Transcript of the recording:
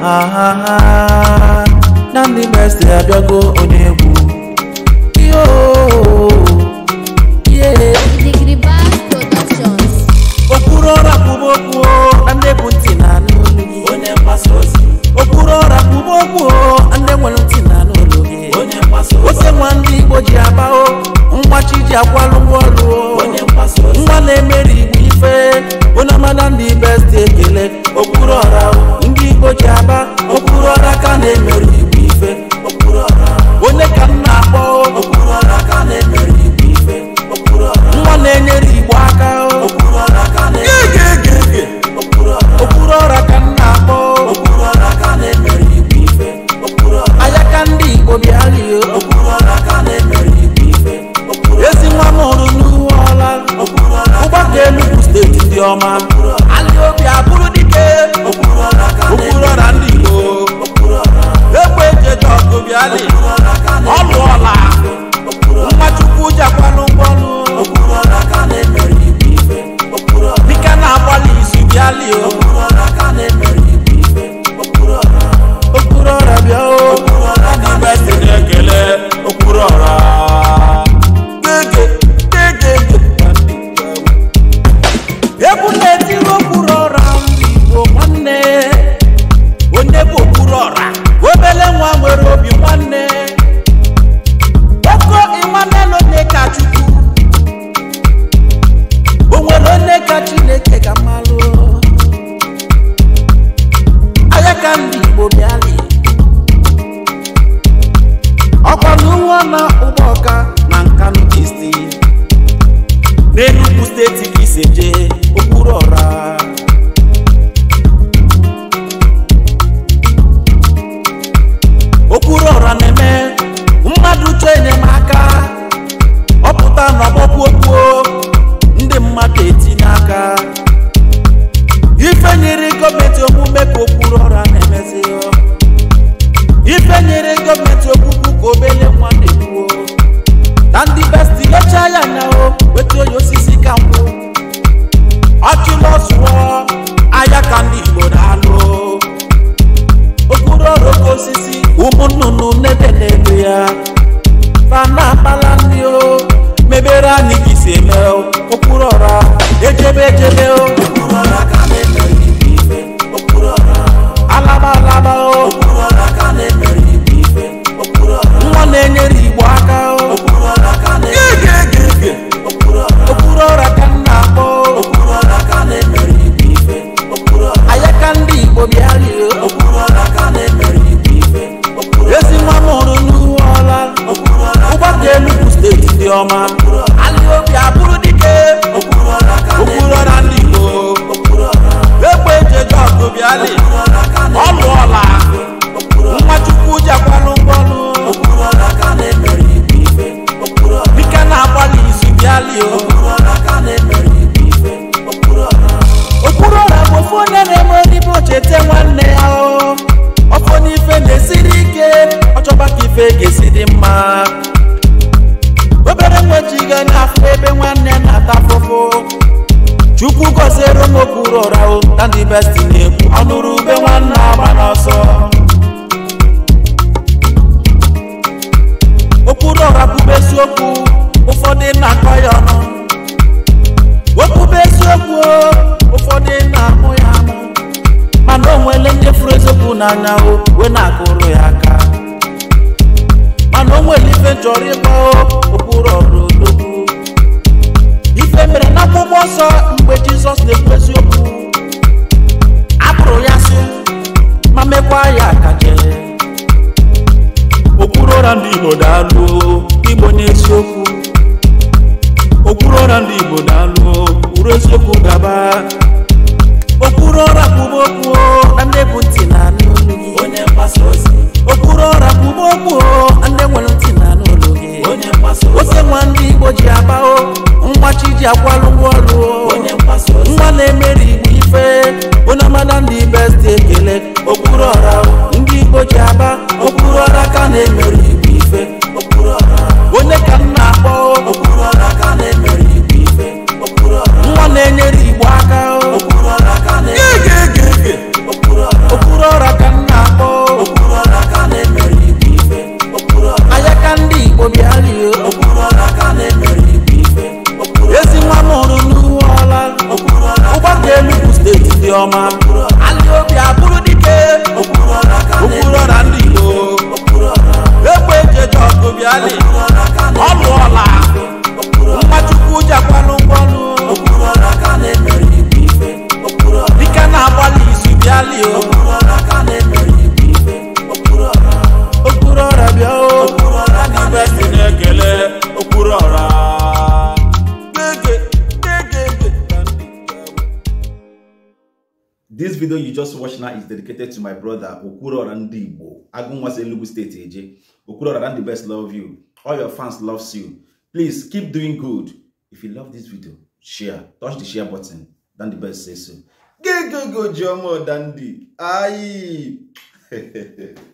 Ah, Namdi Best Abiogo Onegbu. Yo, yeah. Degree Bass Productions. Okpuru ọra kwuba okwu na ndị bụ ntị na anụ olu gị. Onye mgbasa ozi. Okpuru ọra kwuba okwu na ndị nwere ntị na anụ Onye mgbasa ozi. Ose nwa ndị Igbo ji aba mgbachi ji akwalụ. your man. ka chineke ga mara òkúrọ̀ ra jẹjẹrẹ o. mmadụ okpuru ọra bụ ofe onye na-eme odibo cheta nwanne ya ọfọ n'ife na-esiri ike ọchọba ka ife ga-esi dị mma obere nwejiga n'afọ ebe nwanne na-ata afụfụ chukwu gọziere m okpuru ọra o na ndị besti na-ekwu ọnụrụ ube nwanne agba n'anya o wee na-akụrụ ya aka mana o nwere ife chọrọ ịgba okpuru ọdụdogwu ife mere na akwụkwọ nsọ mgbe jizọs na-ekwu eziokwu apụrụ ya sị ma mekwa ya akaje okpuru ụra ndị igbo daalụ igbo n'eziokwu okpuru ụra ndị igbo daalụ uru eziokwu gaba okpuru ụra kwuba okwu na ndị bụ ntị na n'olu gị onye mgbasa ozi okpuru ọra bụ ụgbọ ndị nwere ntị na n'olu onye mgbasa ose nwa ndị igbo ji aba o mgbachi ji akwalụ ụgwọ ọrụ onye mgbasa nwa na-emeri igbo ife onye amada ndị best ekele okpuru ọra obiari o. Okpuru ọla ka na-emere igwe ife. Ezi nwa m hụrụ n'uwe ọla. Ụgbọ dị elu bụ steeti dị ọma. Alị obi abụrụ dike. Okpuru ọla ndị Igbo. Egbe eji eje ọgụ bịalị. Ọlụ ọla. Mmachukwu jakwanụ ngwọnụ. Dike na-agbalị izu bịalị o. this video you just watched now is dedicated to my brother Okurora Okwuluora Ndigbo Agunwase Enugu State Eje Okwuluora the best love you all your fans loves you please keep doing good if you love this video share touch the share button dan the best say so go go go Jomo Dandi Aye.